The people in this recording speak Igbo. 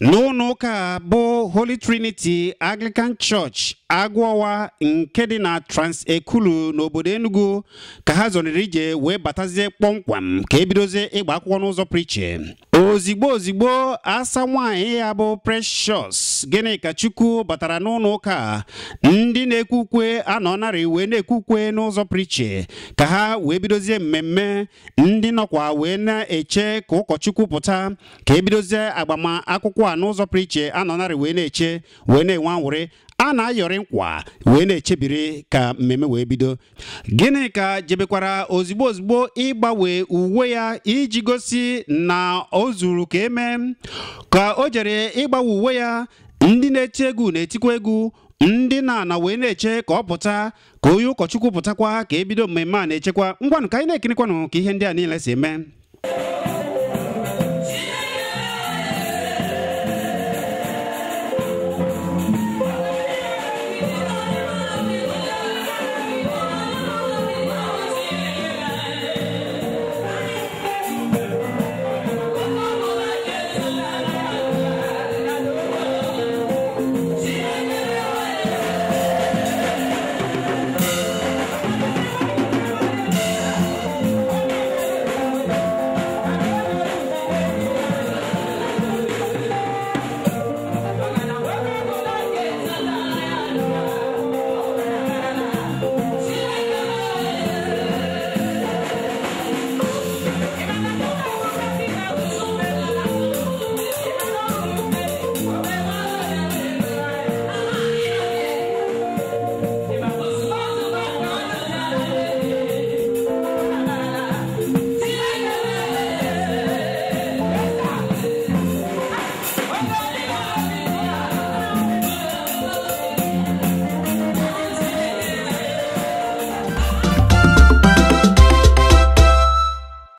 n'ụlọ ụka bụ Holy Trinity Anglican Church agwọwa nke dị na trans Transekulu n'obodo Enugu ka ha zọrịrị ije wee batazie kpọmkwam ka ebidozie ịgba akwụkwọ n'ụzọ prichin ozigbo ozigbo asa nwanyị ya bụ precious gịnị ka chukwu batara n'ụlọ ụka ndị na ekwukwe ukwe anọ narị wee na ekwe ukwe n'ụzọ priche ka ha wee bidozie mmemme ndị nọkwa wee na-eche ka ụkọchukwu pụta ka ebidozie agbamakwụkwọ a n'ụzọ priche anọ narị wee na-eche wee na-enwe anwụrị a na-ayọrị nkwa wee na-echebiri ka mmemme wee bido gịnị ka jebekwara ozigbo ozugbo ịgbanwe uwe ya iji gosi na o zuru ka eme ka o jere ịgbanwe uwe ya ndị na-eti egwu na-etikwa egwu ndị na-ana wee na-eche ka ọ pụta ka onye ụkọchukwu pụtakwa ka ebido mmemme a na-echekwa ngwanụ ka anyị na-ekirikwanụ ka ihe ndị a niile si eme